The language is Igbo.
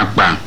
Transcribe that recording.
akpa.